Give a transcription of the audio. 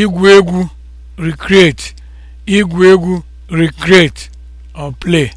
igwu egwu recreate igwu egwu recreate or play